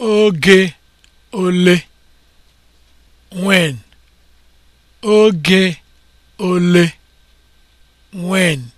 oge ole when oge ole when